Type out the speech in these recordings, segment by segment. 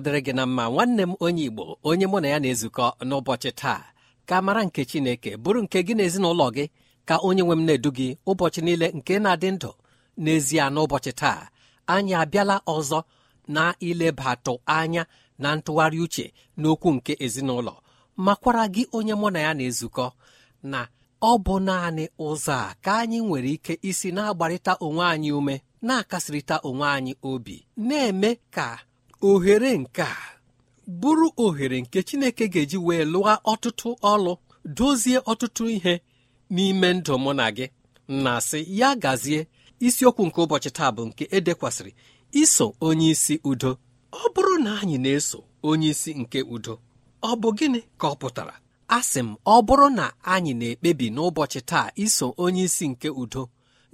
ọ dịrị gị na mma nwanne m onye igbo onye mụ na ya na-ezukọ n'ụbọchị taa ka mara nke chineke bụrụ nke gị na ezinụlọ gị ka onye nwe m na-edu gị ụbọchị niile nke na-adị ndụ n'ezie n'ụbọchị taa anyị abịala ọzọ na ilebatụ anya na ntụgharị uche n'okwu nke ezinụlọ makwara gị onye mụ na ya na-ezukọ na ọ bụ naanị ụzọ a ka anyị nwere ike isi na-agbarịta onwe anyị ume na-akasịrịta onwe anyị obi na-eme ka ohere nke a bụrụ ohere nke chineke ga-eji wee lụọ ọtụtụ ọlụ dozie ọtụtụ ihe n'ime ndụ mụ na gị na sị ya gazie isiokwu nke ụbọchị taa bụ nke edekwasịrị iso onyeisi udo ọ bụrụ na anyị na-eso onyeisi nke udo ọ bụ gịnị ka ọ pụtara asị m ọ bụrụ na anyị na-ekpebi n'ụbọchị taa iso onye nke udo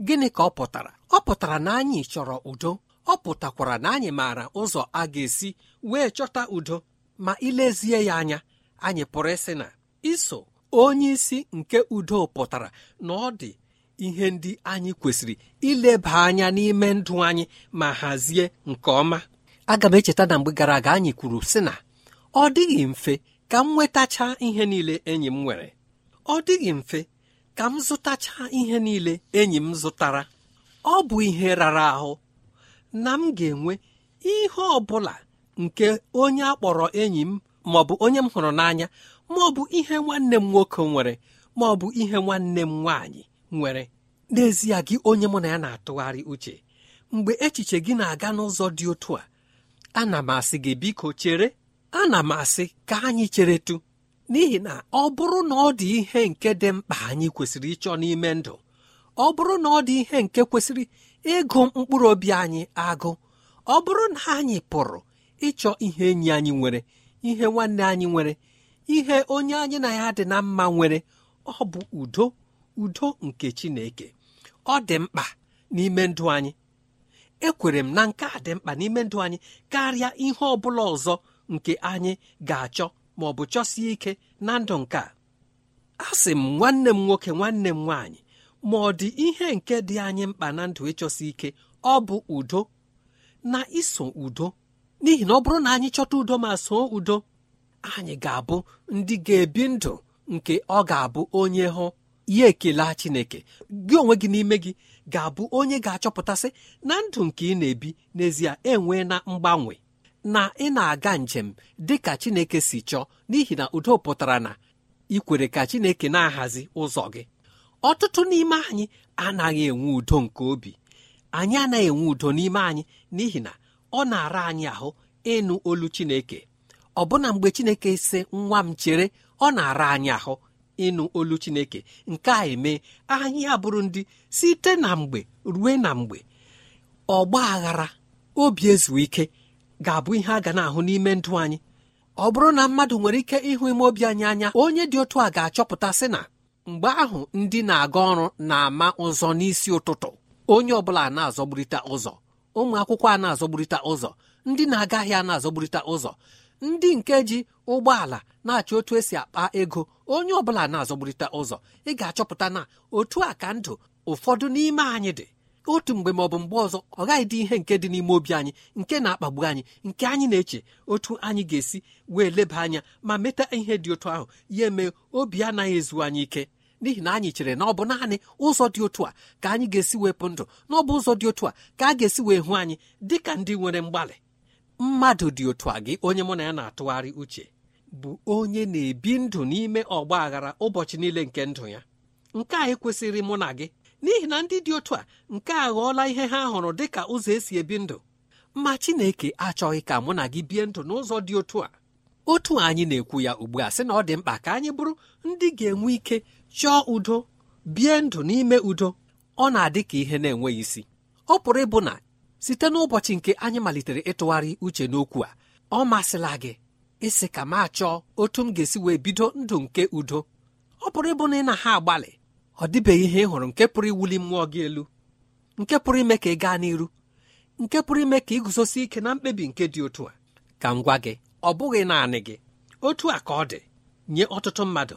gịnị ka ọ pụtara ọ pụtara na anyị chọrọ udo ọ pụtakwara na anyị maara ụzọ a ga-esi wee chọta udo ma ilezie ya anya anyị pụrụ ịsị na iso onyeisi nke udo pụtara na ọ dị ihe ndị anyị kwesịrị ileba anya n'ime ndụ anyị ma hazie nke ọma aga m echeta na mgbe gara aga anyị kwuru sị na ọ dịghị mfe ka m nwetachaa ihe niile enyi m nwere ọ dịghị mfe ka m zụtachaa ihe niile enyi m zụtara ọ bụ ihe rara ahụ na m ga-enwe ihe ọ bụla nke onye a kpọrọ enyi m ma ọ bụ onye m hụrụ n'anya ma ọ bụ ihe nwanne m nwoke nwere ma ọ bụ ihe nwanne m nwaanyị nwere n'ezie gị onye mụ na ya na-atụgharị uche mgbe echiche gị na-aga n'ụzọ dị otu a ana m asị gị biko chere ana m asị ka anyị cheretu n'ihi na ọ bụrụ na ọ dị ihe nke dị mkpa anyị kwesịrị ịchọ n'ime ndụ ọ bụrụ na ọ dị ihe nke kwesịrị ịgụ mkpụrụ obi anyị agụ ọ bụrụ na anyị pụrụ ịchọ ihe enyi anyị nwere ihe nwanne anyị nwere ihe onye anyị na ya dị na mma nwere ọ bụ udo udo nke chineke ọ dị mkpa n'ime ndụ anyị ekwere m na nke a dị mkpa n'ime ndụ anyị karịa ihe ọ bụla ọzọ nke anyị ga-achọ ma bụ chọsie ike na ndụ nke a sị m nwanne m nwoke nwanne m nwaanyị ma ọ dị ihe nke dị anyị mkpa na ndụ ịchọsi ike ọ bụ udo na iso udo n'ihi na ọ bụrụ na anyị chọta udo ma soo udo anyị ga-abụ ndị ga-ebi ndụ nke ọ ga-abụ onye hụ ya ekele Chineke gị onwe gị n'ime gị ga-abụ onye ga-achọpụtasị na ndụ nke ị na-ebi n'ezie enwee na mgbanwe na ị na-aga njem dị ka Chineke si chọọ n'ihi na udo pụtara na ikwere ka Chineke na-ahazi ụzọ gị ọtụtụ n'ime anyị anaghị enwe udo nke obi anyị anaghị enwe udo n'ime anyị n'ihi na ọ na-ara anyị ahụ ịnụ olu chineke ọbụna mgbe chineke si nwa m chere ọ na-ara anyị ahụ ịnụ olu chineke nke a eme anyị abụrụ ndị site na mgbe rue na mgbe ọgba aghara obi ezu ike ga-abụ ihe a ga na-ahụ n'ime ndụ anyị ọ bụrụ na mmadụ nwere ike ịhụ ime obi anyị anya onye dị otu a ga-achọpụta sị na mgbe ahụ ndị na-aga ọrụ na-ama ụzọ n'isi ụtụtụ onye ọbụla na azọgburita ụzọ ụmụ akwụkwọ a na azọgburita ụzọ ndị na-aga ahịa na azọgburita ụzọ ndị nke ji ụgbọala na-achọ otu esi akpa ego onye ọbụla na azọgburita ụzọ ị ga-achọpụta na otu a ka ndụ ụfọdụ n'ime anyị dị otu mgbe ma ọ bụ mgbe ọzọ ọ gaghị dị ihe nke dị n'ime obi anyị nke na-akpagbu anyị nke anyị na-eche otu anyị ga-esi wee leba anya ma meta ihe dị otu ahụ ya eme obi anaghị ezu anyị ike n'ihi na anyị chere na ọ bụ naanị ụzọ dị otu a ka anyị ga-esi wepụ ndụ na ọ bụ ụzọ dị otu a ka a ga-esi wee hụ anyị dị ka ndị nwere mgbalị mmadụ dị otu a gị onye mụ na ya na-atụgharị uche bụ onye na-ebi ndụ n'ime ọgba aghara ụbọchị niile nke ndụ ya nke a ekwesịrị mụ na gị n'ihi na ndị dị otu a nke a ghọọla ihe ha hụrụ dị ka ụzọ esi ebi ndụ ma Chineke achọghị ka mụ na gị bie ndụ n'ụzọ dị otu a otu anyị na-ekwu ya ugbu a sị na ọ dị mkpa ka anyị bụrụ ndị ga-enwe ike chọọ udo bie ndụ n'ime udo ọ na-adị ka ihe na-enweghị isi ọ pụrụ ịbụ na site n'ụbọchị nke anyị malitere ịtụgharị uche n'okwu a ọ masịla gị ịsị ka m achọọ otu m ga-esi wee bido ndụ nke udo ọ pụrụ ịbụ na ị na ha agbalị ọ dịbeghị ihe ị hụrụ nke pụrụ iwuli mmụọ gị elu nke pụrụ ime ka ị gaa n'iru nke pụrụ ime ka ị guzosi ike na mkpebi nke dị otu a ka m gwa gị ọ bụghị naanị gị otu a ka ọ dị nye ọtụtụ mmadụ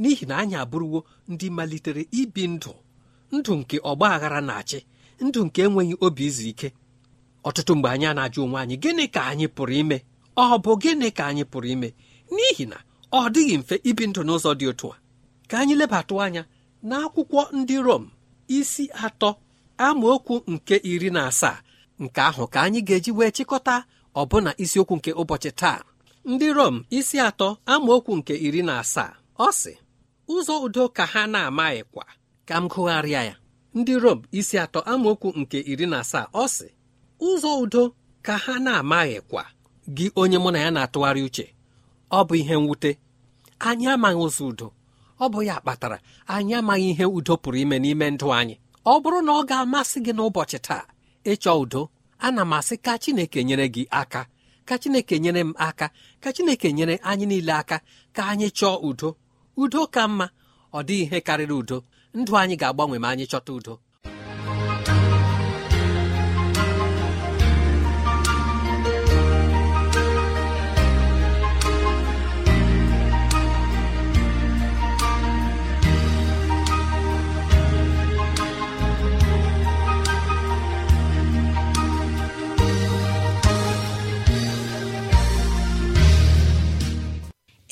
n'ihi na anyị abụrụwo ndị malitere ibi ndụ ndụ nke ọgba aghara na-achị ndụ nke enweghị obi izu ike ọtụtụ mgbe anyị na-ajụ onwe anyị gịnị ka anyị pụrụ ime ọ bụ gịnị ka anyị pụrụ ime n'ihi na ọ dịghị mfe ibi ndụ n'ụzọ dị otu a ka anyị lebatụ anya n'akwụkwọ ndị Rom isi atọ amaokwu nke iri na asaa nke ahụ ka anyị ga-eji wee chịkọta ọbụna isiokwu nke ụbọchị taa ndị Rom isi atọ amaokwu nke iri na asaa ọ sị ụzọ udo ka ha na-amaghịkwa ka m gụgharịa ya ndị rom isi atọ amaokwu nke iri na asaa ọ sị ụzọ udo ka ha na-amaghịkwa gị onye mụ na ya na-atụgharị uche ọ bụ ihe mwute anyị amaghị ụzọ udo ọ bụ ya kpatara anyị amaghị ihe udo pụrụ ime n'ime ndụ anyị ọ bụrụ na ọ ga-amasị gị n'ụbọchị taa ịchọ udo ana m asị ka Chineke nyere gị aka ka Chineke nyere m aka ka Chineke nyere anyị niile aka ka anyị chọọ udo udo ka mma ọ dịghị ihe karịrị udo ndụ anyị ga-agbanwe ma anyị chọta udo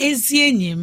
ezi enyi m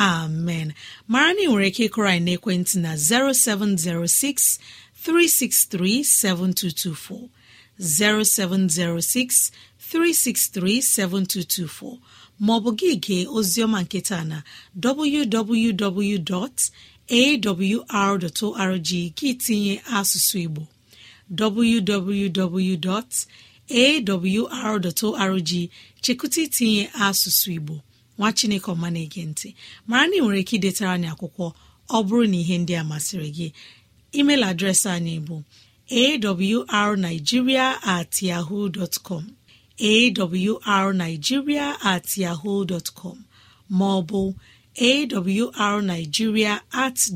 amen mara na ị nwere ike ịkụrụ anyị n'ekwentị na 0706 363 7224 0706 363 7224 maọbụ gị gee oziọma nketa na www.awr.org gị tinye asụsụ Igbo www.awr.org chekụta itinye asụsụ Igbo nwa chineke ọma na-ege ntị mara na ị nwere ike idetara anyị akwụkwọ ọ bụrụ na ihe ndị a masịrị gị email adreesị anyị bụ arigiria at yahoo com at yahoo com ma ọ bụ at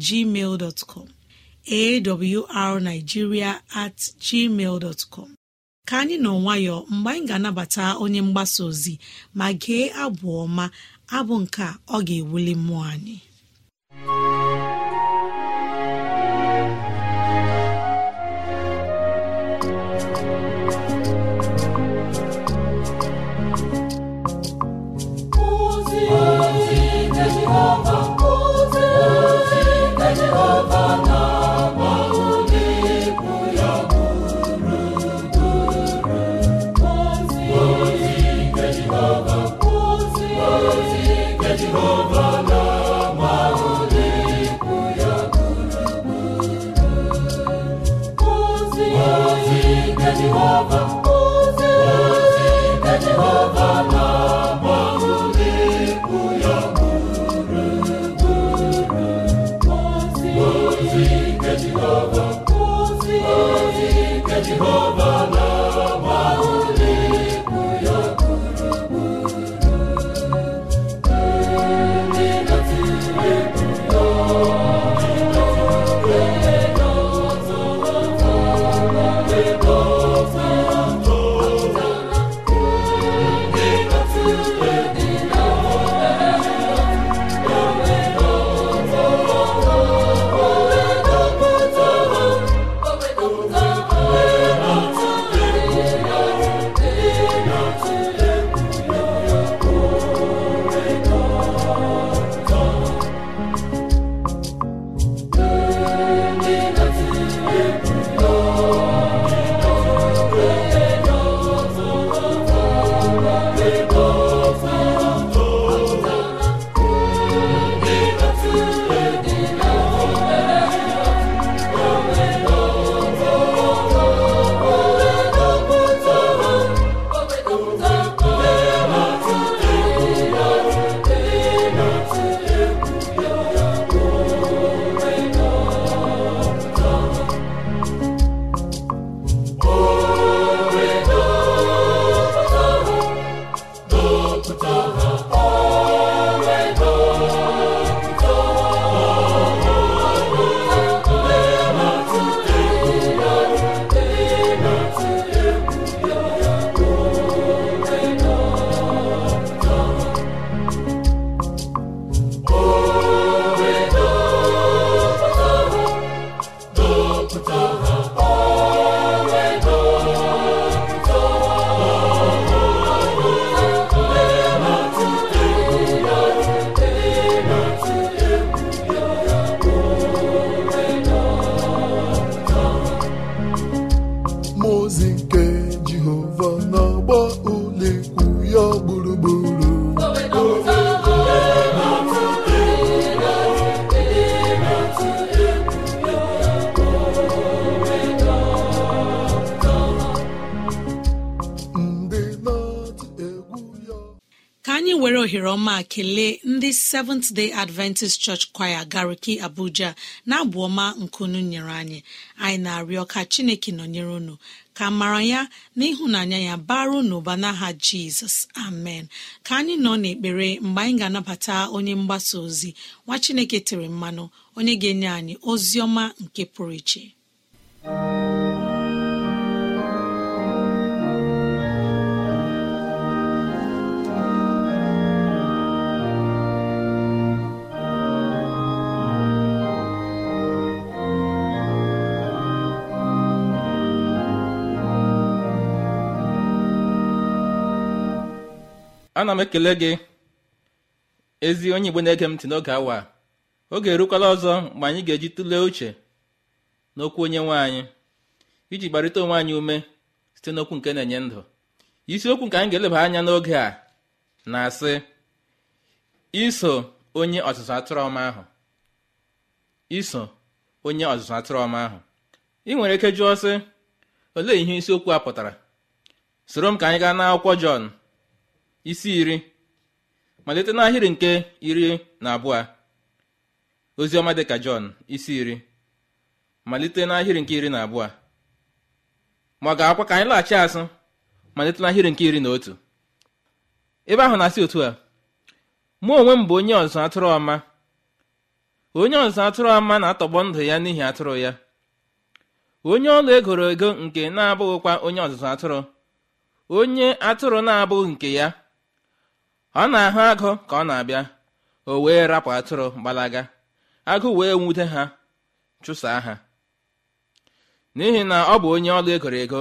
gmail com at gmail dtcom ka anyị nọ nwayọọ mgbe anyị ga-anabata onye mgbasa ozi ma gee abụ ọma abụ nke ọ ga-ewuli mmụọ anyị na-ekele ndị seventh day adventist church Choir gariki abuja na-abụ ọma nkunu nyere anyị anyị na-arịọ ka chineke nọnyere unu ka mara ya na ịhụnanya ya ụnụ n'ụba n'aha jizọs amen ka anyị nọ n'ekpere mgbe anyị ga-anabata onye mgbasa ozi nwa chineke tere mmanụ onye ga-enye anyị ozi ọma nke pụrụ iche ana m ekele gị ezi onye igbo na-ege m ntị n'oge awa oge erukwala ọzọ mgbe anyị ga-eji tụlee uche n'okwu onye nwe anyị iji gbarịta onwe anyị ume site n'okwu nke na-enye ndụ isiokwu nke anyị ga-eleba anya n'oge a na-asị iso onye ọzụzụ atụrụ ọma ahụ iso onye ọzụzụ atụrụ ọma ahụ ị nwere ike jụọ sị olee ihe isiokwu a pụtara soro m ka anyị gaa n'akwụkwọ Jọn isi iri malite n'ahịrị nke iri na abụọ oziọma dịka jọn isi iri malite n'ahịrị nke iri na abụọ ma ọ ga-akwa ka anyị laghachi azụ malite n'ahịrị nke iri na otu ebe ahụ na-asị otu a mụ onwe m bụ onye ọzụzụ atụrụ ọma onye ọzụzụ atụrụ ọma na-atọgbọ ndụ ya n'ihi atụrụ ya onye ọlụ egoro ego nke na-abụghịkwa onye ọzụzụ atụrụ onye atụrụ na-abụghị nke ya ọ na-ahụ agụ ka ọ na-abịa o wee rapụ atụrụ gbalaga agụ wee nwute ha chụsaa ha n'ihi na ọ bụ onye ọlụ egoro ego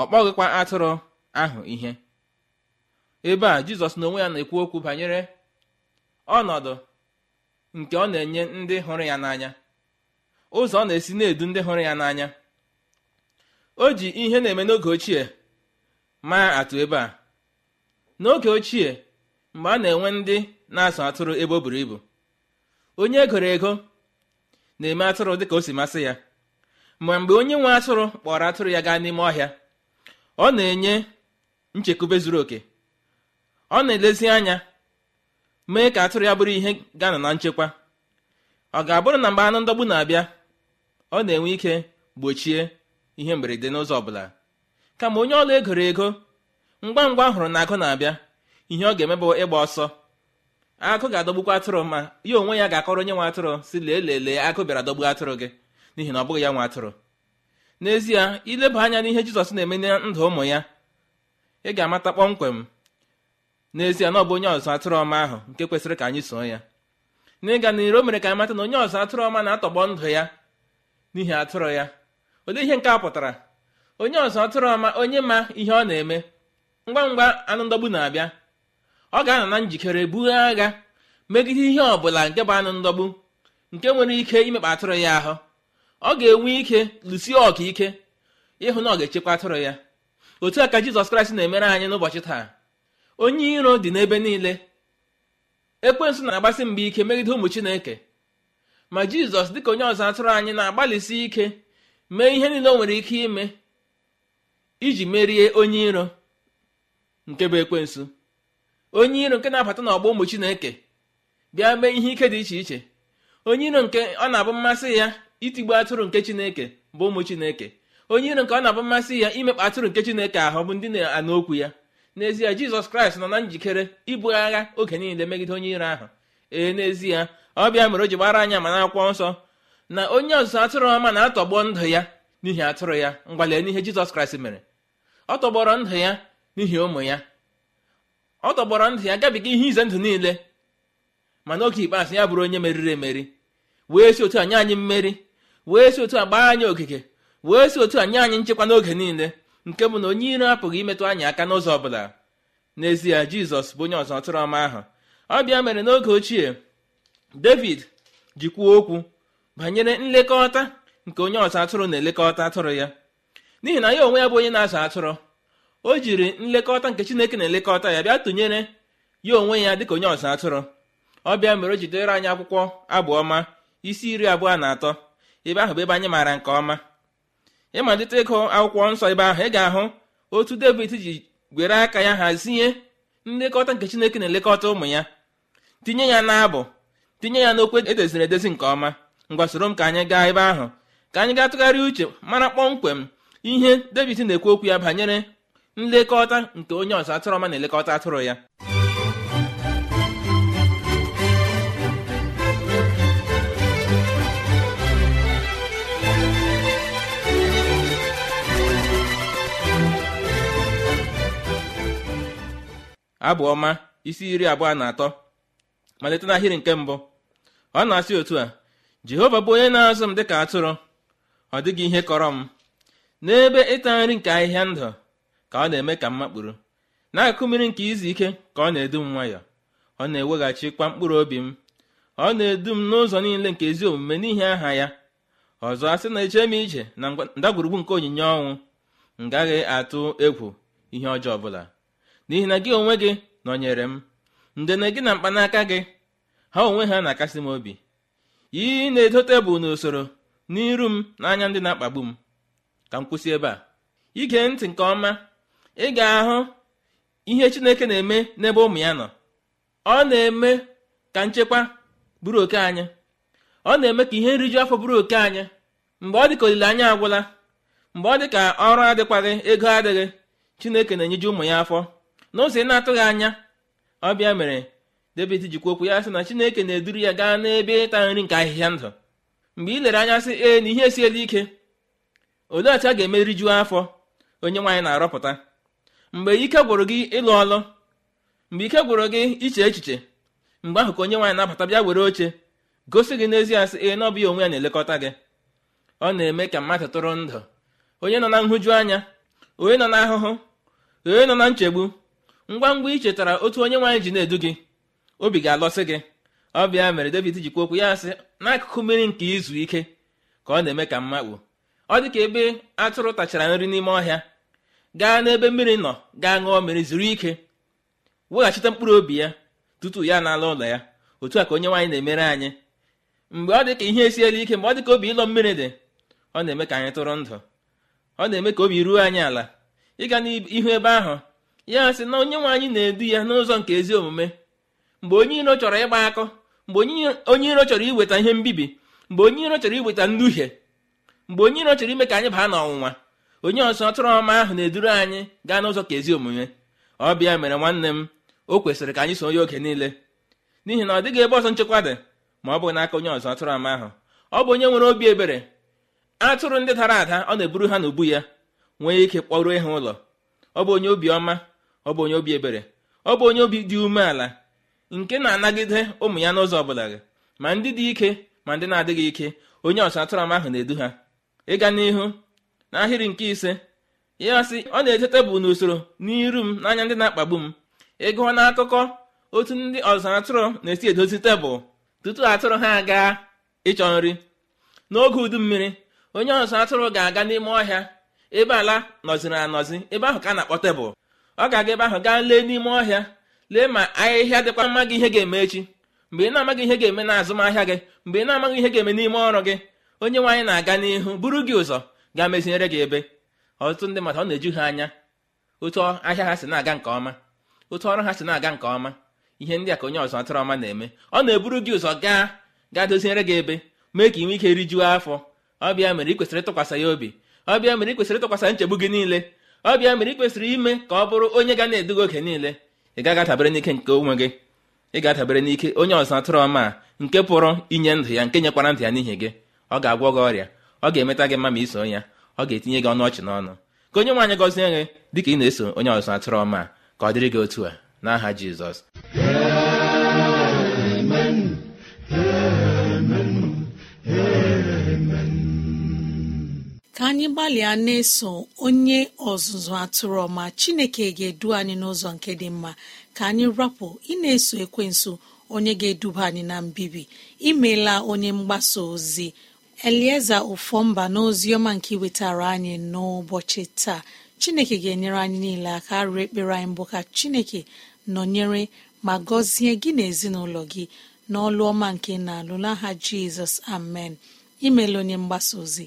ọ kpọghịkwa atụrụ ahụ ihe ebe a jizọs n'onwe ya na-ekwu okwu banyere ọnọdụ nke ọ na-enye ndị hụrụ ya n'anya ụzọ ọ na-esi na-edu ndị hụrụ ya n'anya o ji ihe na-eme n'oge ochie maa atụ ebe a n'oge ochie mgbe a na-enwe ndị na-azụ atụrụ ebe o buru ibu onye egoro ego na-eme atụrụ dịka o si masị ya ma mgbe onye nwe atụrụ kpọrọ atụrụ ya gaa n'ime ọhịa ọ na-enye nchekwube zuru oke ọ na-elezi anya mee ka atụrụ ya bụrụ ihe gana na nchekwa ọ ga-abụrụ na mgbe anụ ndọgbu na-abịa ọ na-enwe ike gbochie ihe mberede n'ụzọ ọbụla kama onye ọla egoro ego ngwa ngwa hụrụ na agụ na-abịa ihe ọ ga-eme bụ ịgba ọsọ akụ ga-adọgbukwa atụrụ ma ya onwe ya ga-akọrọ onye nwe atụrụ si lee lelee akụ bịara dọgbu atụrụ gị n'ihi na ọ bụghị ya nwe atụrụ n'ezie ileba anya n'ihe jizọs na-eme na ndụ ụmụ ya ị ga-amata kpọmkwem n'ezie na ọ bụ onye ọzụ atụrụ ọma ahụ nke kwesịrị ka anyị soo ya n'ịga n'iru o mere ka anyị mata na onye ọzụ atụrụ ọma na-atọgbọ ndụ ya n'ihi atụrụ ya olee ihe nke a pụtara onye ọzụ atụrụ ọma onye ma ihe ọ na-eme ngwa ngwa anụ ndọgbu na-abịa ọ ga-anọ na njikere bughe agha megide ihe ọbụla nke bụ anụ ndọgbu nke nwere ike imekpa atụrụ ya ahụ ọ ga-enwe ike lụsie ọka ike ịhụ na ọ ga-echekwa atụrụ ya otu a ka jizọs kraịst na-emere anyị n'ụbọchị taa onye iro dị n'ebe niile ekwensu na-agbasi mgbe ike megide ụmụ chineke ma jizọs dịka onye ọzọ atụrụ anyị na-agbalịsi ike mee ihe niile o nwere ike ime iji merie onye iro nke bụ ekwensu onye iro nke na-abata n'ọgbọ ụmụ chineke bịa mee ihe ike dị iche iche onye iro nke ọ na-abụ mmasị ya itigbu atụrụ nke chineke bụ ụmụ chineke onye iro nke ọ na-abụ mmasị ya imekpa atụrụ nke chineke ahụ bụ ndị na-anụ okwu ya n'ezie jizọs kraịst nọ na njikere ibu agha oge niile megide onye iro ahụ ee n'ezie ọ bịa mere o ji gbara anya ma n'akwụkwọ nsọ na onye ọzụzụ atụrụ ọma na-atọgbọ ndụ ya n'ihi atụrụ ya ngwalee n'ihe jizọs kraịst mere ọ tọgbọrọ ndụ ya n'ihi ụmụ ya ọ tọgbọrọ ndụ ya gabiga ihe ize ndụ niile mana oge ikpeazụ ya bụrụ onye meriri emeri wee si otu a nye anyị mmeri wee si otu a gbaa anyị ogige wee si otu a nye anyị nchekwa n'oge niile nke bụ na onye iro apụghị imetụ anyị aka n'ụzọ ọ bụla n'ezie jizọs bụ onye ọzọ tụrụ ọma ahụ ọ bịa mere n'oge ochie david ji kwuo okwu banyere nlekọta nke onye ọzọ atụrụ na-elekọta atụrụ ya n'ihi na ya onwe ya bụ onye na-azụ atụrụ o jiri nlekọta nke chineke na-elekọta ya bịa tụnyere ya onwe ya dịka onye ọzọ atụrụ ọ bịa mere o jidere anyị akwụkwọ abụ ọma isi iri abụọ na atọ ebe ahụ bụ ebe anyị maara nke ọma ịmalite ịgụ akwụkwọ nsọ ebe ahụ ị ga-ahụ otu david ji gwere aka ya hazie nlekọta nke chineke na-elekọta ụmụ ya tinye ya n'abụ tinye ya n'okwu edoziri edozi nke ọma ngwa soro m ka anyị gaa ebe ahụ ka anyị gaa tụgharịa uche mara kpọmkwem ihe david na-ekwu okwu ya banyere nlekọta nke onye ọzọ atụrụ ọma na-elekọta atụrụ ya abụ ọma isi iri abụọ na atọ malite n'ahịrị nke mbụ ọ na-asị otu a jehova bụ onye na-azụ m dịka atụrụ ọ dịghị ihe kọrọ m n'ebe ịta nri nke ahịhịa ndụ ka ọ na-eme ka mmakpụrụ n'akụkụ mmiri nke izu ike ka ọ na-edu m nwayọọ ọ na kwa mkpụrụ obi m ọ na-edu m n'ụzọ niile nke ezi omume n'ihi aha ya ọzọ sị na eche m ije na ndagwurugwu nke onyinye ọnwụ m gaghị atụ egwu ihe ọjọọ ọbụla n'ihi na gị onwe gị nọnyere m ndene gị na mkpanaka gị ha onwe ha na-akasị m obi I na-edo tebụl n'usoro n'iru m n'anya ndị na-akpagbu m ka m kwụsị ebe a ige ntị nke ọma ị ga-ahụ ihe chineke na-eme n'ebe ụmụ ya nọ ọ na-eme ka nchekwa bụrụ oke anyị ọ na-eme ka ihe nriju afọ bụrụ oke anyị mgbe ọ dị ka olileanya agwụla mgbe ọ dị ka ọrụ adịkwaghị ego adịghị chineke na-enyeju ụmụ ya afọ n'ụzọ ị na-atụghị anya ọbịa mere david jikwa okwu ya sị na chineke na-eduru ya gaa n'ebe ịta nri nke ahịhịa ndụ mgbe ị lere anya sị ee na ihe esiela ike olee otu a ga-eme rijuo afọ onye nwaanyị na-arọpụta mgbe ike gwụrụ gị ịlụ ọlụ mgbe ike gwụrụ gị iche echiche mgbe ahụ ka onye nwaanyị na-abata bịa were oche gosi gị n'ezie asị ee na ya onwe ya na-elekọta gị ọ na-eme ka mmadụ tụrụ ndụ onye nọ na nhụju anya onye nọ na ahụhụ onye nọ na nchegbu ngwa ngwa ichetara chetara otu onye nwaanyị ji na-edu gị obi ga-alọsị gị ọ bịa mere David jikwa okwu ya sị n'akụkụ mmiri nke izu ike ka ọ na-eme ka mma kpuo ọ dị ka ebe atụrụ tachara nri n'ime ọhịa gaa n'ebe mmiri nọ gaa ṅụọ mmiri zuru ike weghachite mkpụrụ obi ya tutu ya n'ala ụlọ ya otu a ka onye nwaanyị na-emere anyị mgbe ọ dị ka ihe esiela ike mgbe ọ dị ka obi ịlọ mmiri dị ọ na-eme ka anyị tụrụ ndụ ọ na-eme ka obi ruo anyị ala ịga n'ihu ebe ahụ ya sị na onye nwe anyị na-edu ya n'ụzọ nke ezi omume mgbe onye iro chọrọ ịgba akọ mgbe onye iro chọrọ iweta ihe mbibi mgbe onye iro chọrọ iweta nduhie mgbe onye iro chọrọ ime ka anyị baa n'ọnwụnwa onye ọzọ ọtụrụ ọma ahụ na-eduru anyị gaa n'ụzọ ka ezi omume ọ bịa mere nwanne m o kwesịrị ka anyị so ya oge niile n'ihi na ọ dịghị ebe ọzọ nchekwa dị ma ọ bụ n'aka onye ọzọ tụrụ ọma ahụ ọ bụ onye nwere obi ebere atụrụ ndị dara ada ọ na-eburu ha n'ubu ya nwee ike kpọruo ha ụlọ ọ bụ onye obi ọma ọ bụ onye obi ebere ọ bụ onye obi dị umeala nke na-anagide ụmụ ya n'ụzọ ọbụla gị ma ndị dị ike ma ndị na-adịghị ike onye ọzọ atụrụ ọma ahụ na-edu ha ịga n'ihu n'ahịrị nke ise ya sị ọ na-eje tebụl n'usoro n'iru m n'anya ndị na-akpagbu m ịgụọ n'akụkọ otu ndị ọzọ atụrụ na-esi edozi tebụl tutu atụrụ ha gaa ịchọ nri n'oge udu mmiri onye ọzọ atụrụ ga-aga n'ime ọhịa ebe ala nọziri anọzi ebe ahụ ka a na-akpọ tebụl ọ ga-aga ebe ahụ gaa lee n'ime ọhịa lee ma ahịhịa dịkwa mma gị ihe ga-eme echi mgbe ị na-amaghị ihe ga-eme na azụmahịa gị mgbe ị na-amaghị ihe ga-eme n'ime ọrụ gị onye nwaanyị na-aga n'ihu buru gị ụzọ ga-amezinyere gị ebe ọtụtụ ndị mmadụ ọ na-eju ha anya otu ahịa ha si na-aga nke ọma otu ọrụ ha si na-aga nke ọma ihe ndị a ka onye ọzọ atụrụ ọma na-eme ọ na-eburu gị ụzọ gaa gaa doziere gị ebe mee ka ị nwee ike rijuo afọ ọbịa mere ị kwesịrị ịtụkwasị ya obi ọbịa mere ị kwesịrị ịtụkwasị nchegbu gị niile ọbịa mere ị kwesịrị ime ka ọ bụrụ onye ga na-eduga oge niile ị gaghị adabere n'ike nke onwe gị ị ga-adabere n'ike onye ọzọ atụrụ ọma nke pụrụ inye ndụ ya nke nyekwara ndụ ya n'ihi gị ọ ga-agwọ gị ọrịa ọ ga-emeta gị mma ma iso ya ọ ga-etinye gị ọnụ ọchị n'ọnụ ka onye nwaanyị gọzie gị dịka ị na-eso onye ọzụzụ atụrụ ọma ka ọ dịrị gị otu a n'aha jizọs ka anyị gbalịa na-eso onye ọzụzụ atụrụ ọma chineke ga-edu anyị n'ụzọ nke dị mma ka anyị rapụ ị na-eso ekwensu onye ga-eduba anyị na mbibi imeela onye mgbasa ozi elieza n'ozi ọma nke wetara anyị n'ụbọchị taa chineke ga-enyere anyị niile aka arịọ ekpere anyị mbụ ka chineke nọnyere ma gọzie gị na ezinụlọ gị n'ọlụ ọma nke na-alụ n'aha jizọs amen imelụ onye mgbasa ozi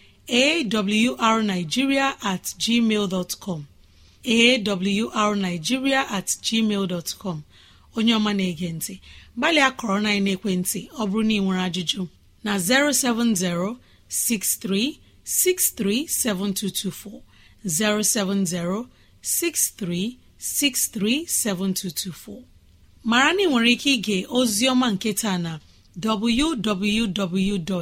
awrnigeria at gmail awrnigeria at gmail dot onye ọma na-ege ntị gbalịa kọrọ na ekwentị ọ bụrụ na ị nwere ajụjụ na 07063637224 7224 mara na ị nwere ike ige ozi ọma nke taa na www.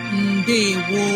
ndewo